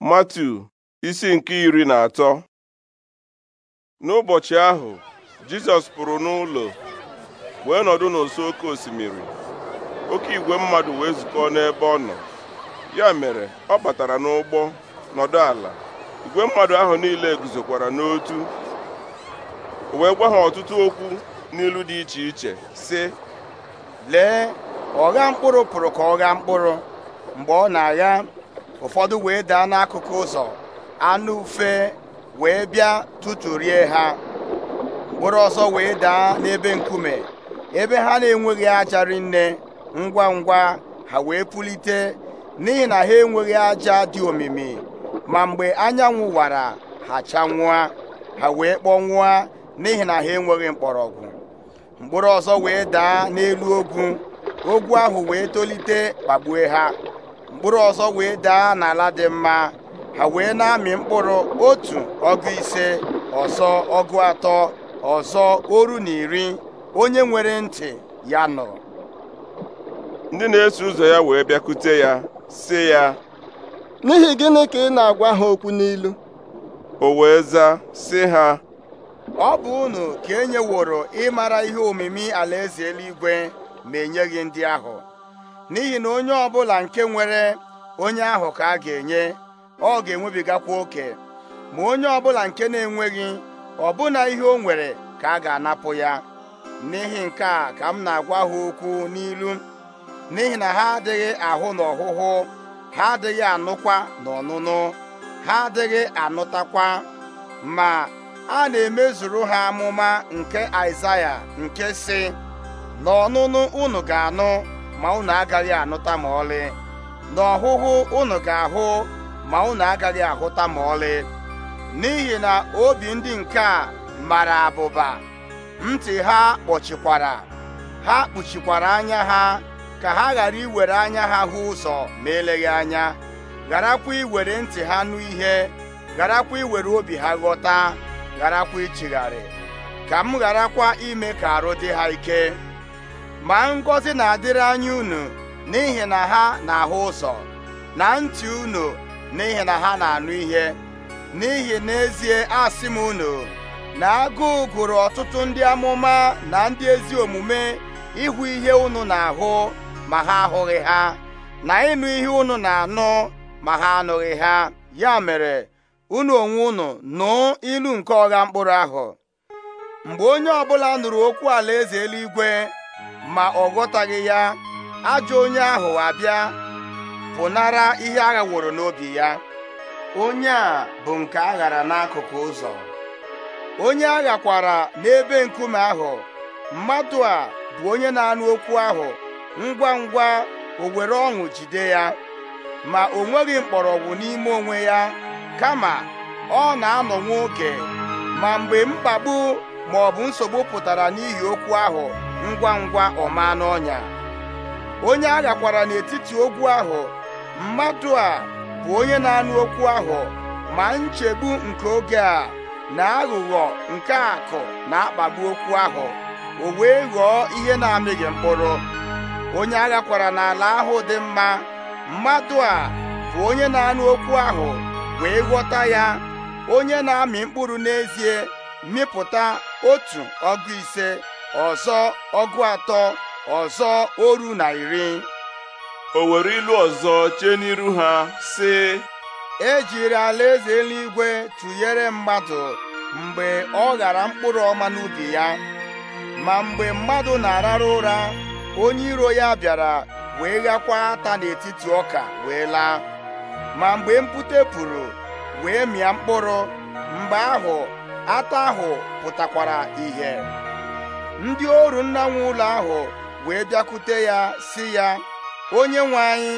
Matu isi nke iri na atọ n'ụbọchị ahụ Jizọs pụrụ n'ụlọ wee nọdụ n'ụsọ oke osimiri oke igwe mmadụ wee zukọ n'ebe ọ nọ ya mere ọ batara n'ụgbọ nọdụ ala igwe mmadụ ahụ niile guzokwara n'otu wee gwa ha ọtụtụ okwu n'ilu dị iche iche sị lee ọgha mkpụrụ pụrụ ka ọ gha mkpụrụ mgbe ọ na-agha ụfọdụ wee daa n'akụkụ ụzọ anụ ufe wee bịa rie ha mkpụrụ ọzọ wee daa n'ebe nkume ebe ha na-enweghị aja rinne ngwa ngwa ha wee pulite n'ihi na ha enweghị aja dị omimi ma mgbe anyanwụ wara ha chanwụa ha wee kpọnwụa n'ihi na ha enweghị mgbọrọgwụ mkpụrụ ọzọ wee daa n'elu ogwu ogwu ahụ wee tolite kpagbue ha mkpụrụ ọzọ wee daa n'ala dị mma ha wee na-amị mkpụrụ otu ọgụ ise ọzọ ọgụ atọ ọzọ oru na iri onye nwere ntị ya nọ. ndị na-eso ụzọ ya wee bịakute ya sị ya n'ihi gịnị ka ị na-agwa ha okwu n'ilu o wee zaa sị ha ọ bụ unu ka e nyeworo ịmara ihe omimi alaeze eluigwe ma enyeghị ndị ahụ n'ihi na onye ọbụla nke nwere onye ahụ ka a ga-enye ọ ga-enwebigakwa oke ma onye ọbụla nke na-enweghị ọbụna ihe o nwere ka a ga-anapụ ya n'ihi nke a ka m na-agwa ha okwu n'ilu n'ihi na ha adịghị ahụ na ọhụhụ ha adịghị anụkwa na ọnụnụ ha adịghị anụtakwa ma a na-emezuru ha amụma nke Aịzaya nke si na unu ga-anụ ma unu agaghị anụta ma ọlị na ọhụhụ unu ga-ahụ ma unu agaghị ahụta ma ọlị n'ihi na obi ndị nke a mara abụba ntị ha kpọchikwara ha kpuchikwara anya ha ka ha ghara iwere anya ha hụ ụzọ ma eleghị anya gharakwa iwere ntị ha nụ ihe gharakwa iwere obi ha ghọta gharakwa ichigharị ka m gharakwa ime ka arụ dị ha ike ma ngọzi na-adịrị anya unu n'ihi na ha na-ahụ ụzọ na ntị unu n'ihi na ha na-anụ ihe n'ihi n'ezie asị m unu na agụụ gụrụ ọtụtụ ndị amụma na ndị ezi omume ịhụ ihe unu na-ahụ ma ha ahụghị ha na ịnụ ihe unu na-anụ ma ha anụghị ha ya mere unu onwe unu nụ ilu nke ọgha mkpụrụ ahụ mgbe onye ọbụla nụrụ okwu alaeze eluigwe ma ọ ghọtaghị ya ajọ onye ahụ abịa pụnara ihe aghaworo n'obi ya onye a bụ nke a ghara n'akụkụ ụzọ onye aghakwara n'ebe nkume ahụ mmadụ a bụ onye na-anụ okwu ahụ ngwa ngwa o were ọṅụ jide ya ma o nweghị mkpọrọgwụ n'ime onwe ya kama ọ na-anọ nwoke ma mgbe mkpagbu ma ọ bụ nsogbu pụtara n'ihi okwu ahụ ngwa ngwa ọma n'ọnya onye aghakwara kwara n'etiti ogwu ahụ mmadụ a bụ onye na-anụ okwu ahụ ma nchegbu nke oge a na aghụghọ nke akụ na-akpagbu okwu ahụ o wee ghọọ ihe na-amịghị mkpụrụ onye aghakwara kwara n'ala ahụ dị mma mmadụ a bụ onye na-anụ okwu ahụ wee ghọta ya onye na-amị mkpụrụ n'ezie mịpụta otu ọgụ ise ọzọ ọgụ atọ ọzọ oru na iri o were ilu ọzọ chee n'iru ha sị ejiri alaeze eluigwe tụnyere mmadụ mgbe ọ ghara mkpụrụ ọma n'ubi ya ma mgbe mmadụ na-arara ụra onye iro ya bịara wee ghakwa ata n'etiti ọka wee laa ma mgbe mpute pụrụ wee mịa mkpụrụ mgbe ahụ ata ahụ pụtakwara ìhè ndị oru nna nwe ụlọ ahụ wee bịakwute ya si ya onye nwe anyị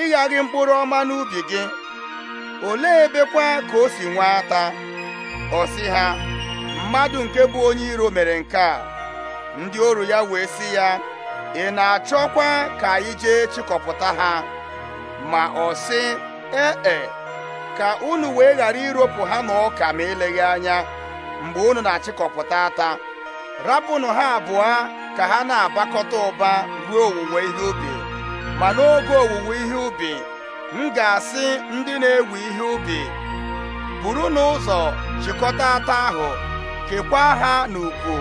ịghaghị mkpụrụ ọma n'ubi gị olee ebekwa ka o si nwee ata ọ ha mmadụ nke bụ onye iro mere nke a ndị oru ya wee sị ya ị na-achọkwa ka anyị jee chịkọpụta ha ma ọ sị ee e, ka unu wee ghara iropụ ha na ọka ma eleghị anya mgbe unu na-achịkọpụta ata rapụnụ ha abụọ ka ha na agbakọta ụba ruo owuwe ihe ubi ma n'oge owuwe ihe ubi m ga-asị ndị na-ewe ihe ubi buru n'ụzọ chịkọta ata ahụ kekwaa ha n'ukwu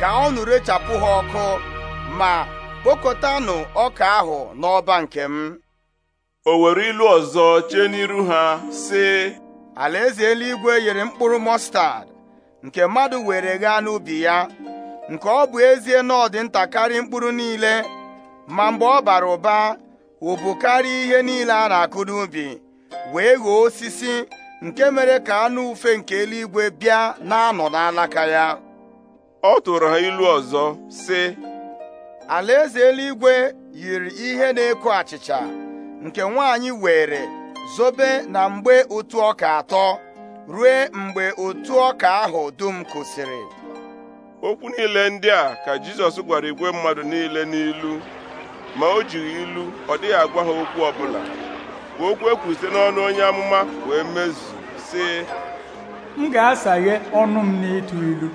ka ọnụ rechapụ ha ọkụ ma kpokọtanụ ọka ahụ n'ọba nke m o were ilu ọzọ chee n'iru ha sị alaeze eluigwe yiri mkpụrụ mọstad nke mmadụ were gaa n'ubi ya nke ọ bụ ezie na ọ dị ntakarị mkpụrụ niile ma mgbe ọ bara ụba karịa ihe niile a na-akụ n'ubi wee ghọọ osisi nke mere ka anụ ufe nke eluigwe bịa na-anọ n'alaka ya ọ tụrụ ha ilu ọzọ sị alaeze eluigwe yiri ihe na-eko achịcha nke nwaanyị were zobe na mgbe otu ọka atọ ruo mgbe otu ọka ahụ dum kwụsịrị okwu niile ndị a ka Jizọs gwara igwe mmadụ niile n'ilu ma o jighị ilu ọ dịghị agwa ha okwu ọbụla ka okwu e n'ọnụ onye amụma wee mezu sị m ga-asaghe ọnụ m n'ịtụ ilu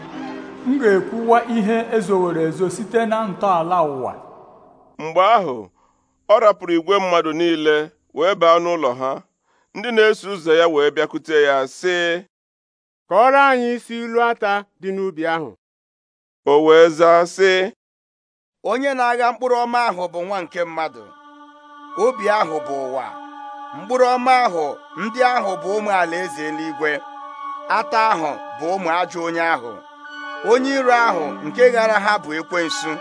m ga-ekwuwa ihe ezowere ezo site na ntọala ụwa mgbe ahụ ọ rapụrụ igwe mmadụ niile wee baa n'ụlọ ha ndị na-eso ụzọ ya wee bịakwute ya sị kọọrọ anyị isi ilu ata dị n'ubi ahụ o wee zaa sị onye na-agha mkpụrụ ọma ahụ bụ nwa nke mmadụ obi ahụ bụ ụwa mkpụrụ ọma ahụ ndị ahụ bụ ụmụ alaeze eluigwe ata ahụ bụ ụmụ ajọ onye ahụ onye iro ahụ nke ghara ha bụ ekwensu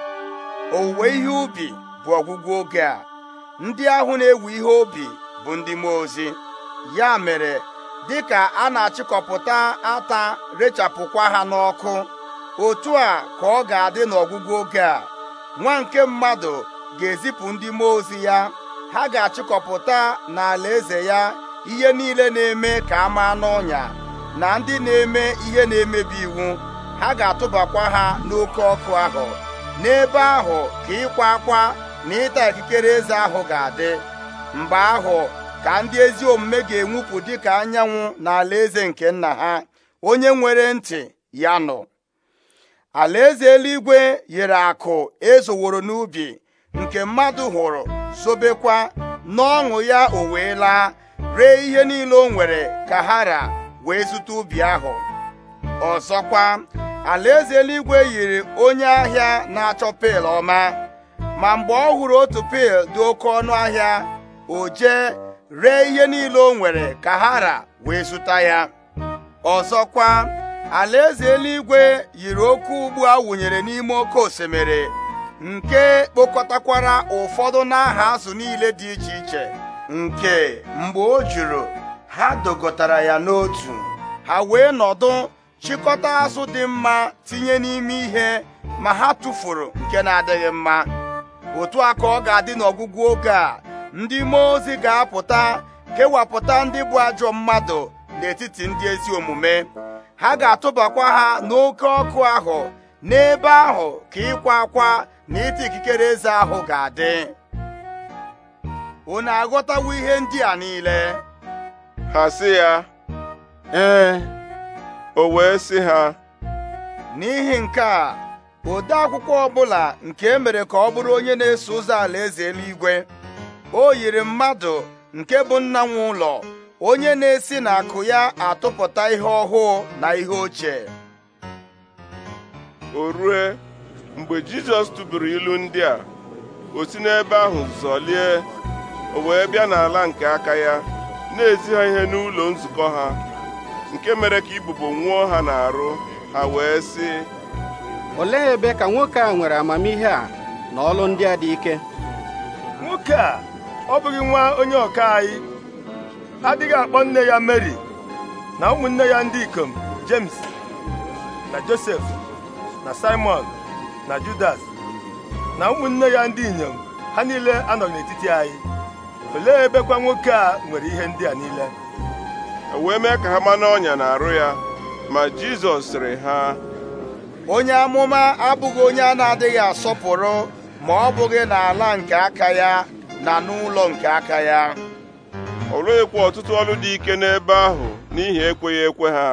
owuwe ihe ubi bụ ọgwụgwụ oge a ndị ahụ na-ewu ihe obi bụ ndị mmụọ ozi ya mere dịka a na-achịkọpụta ata rechapụkwa ha n'ọkụ otu a ka ọ ga-adị n'ọgwụgwụ oge a nwa nke mmadụ ga-ezipụ ndị mmụọ ozi ya ha ga-achịkọpụta n'ala eze ya ihe niile na-eme ka a maa n'ọnya na ndị na-eme ihe na-emebi iwu ha ga-atụbakwa ha n'oke ọkụ ahụ n'ebe ahụ ka ịkwa akwa na ịta ikikere eze ahụ ga-adị mgbe ahụ ka ndị ezi omume ga-enwupụ dịka anyanwụ na alaeze nke nna ha onye nwere ntị ya nọ alaeze eluigwe yiri akụ ezoworo n'ubi nke mmadụ hụrụ zobekwa n'ọṅụ ya o wee laa ree ihe niile o nwere ka ha ra wee zụta ubi ahụ ọzọkwa alaeze eluigwe yiri onye ahịa na-achọ pel ọma ma mgbe ọ hụrụ otu pil dị oke ọnụ ahịa o jee ree ihe niile o nwere ka hara wee zụta ya ọzọkwa alaeze eluigwe yiri oke ugbu a wụnyere n'ime oke osimiri nke kpokọtakwara ụfọdụ n'aha azụ niile dị iche iche nke mgbe o juru ha dogotara ya n'otu ha wee nọdụ chịkọta azụ dị mma tinye n'ime ihe ma ha tụfuru nke na-adịghị mma otu a ka ọ ga-adị n'ọgwụgwụ oge a ndị mmụọ ozi ga-apụta kewapụta ndị bụ ajọ mmadụ n'etiti ndị ezi omume ha ga-atụbakwa ha n'oke ọkụ ahụ n'ebe ahụ ka ịkwa akwa na ịta ikikere eze ahụ ga-adị na aghọtawo ihe ndị a niile ha si ya ee o wee si ha n'ihi nke a ode akwụkwọ ọbụla nke e mere ka ọ bụrụ onye na-eso ụzọ alaeze eluigwe o yiri mmadụ nke bụ nna nwe ụlọ onye na-esi n'akụ ya atụpụta ihe ọhụụ na ihe ochie o rue mgbe jizọs tụburu ilu ndị a o si n'ebe ahụ zọlie o wee bịa n'ala nke aka ya na-ezi ihe n'ụlọ nzukọ ha nke mere ka ibubo nwụọ ha n'arụ ha wee sị olee ebe ka nwoke a nwere amamihe a na ọlụ ndị a dị ike nwoke a ọ bụghị nwa onye ọka anyị adịghị akpọ nne ya Mary na ụmụnne ya ndị ikom James na Josef, na Simon na Judas na ụmụnne ya ndị inyom ha niile anọ n'etiti anyị olee ebekwa nwoke a nwere ihe ndị a niile e wee mee ka ha ma n'ọnya na arụ ya ma Jizọs sịrị ha onye amụma abụghị onye a na-adịghị asọpụrụ ma ọ bụghị n'ala nke aka ya na n'ụlọ nke aka ya o ekwe ọtụtụ ọrụ dị ike n'ebe ahụ n'ihi ekweghị ekwe ha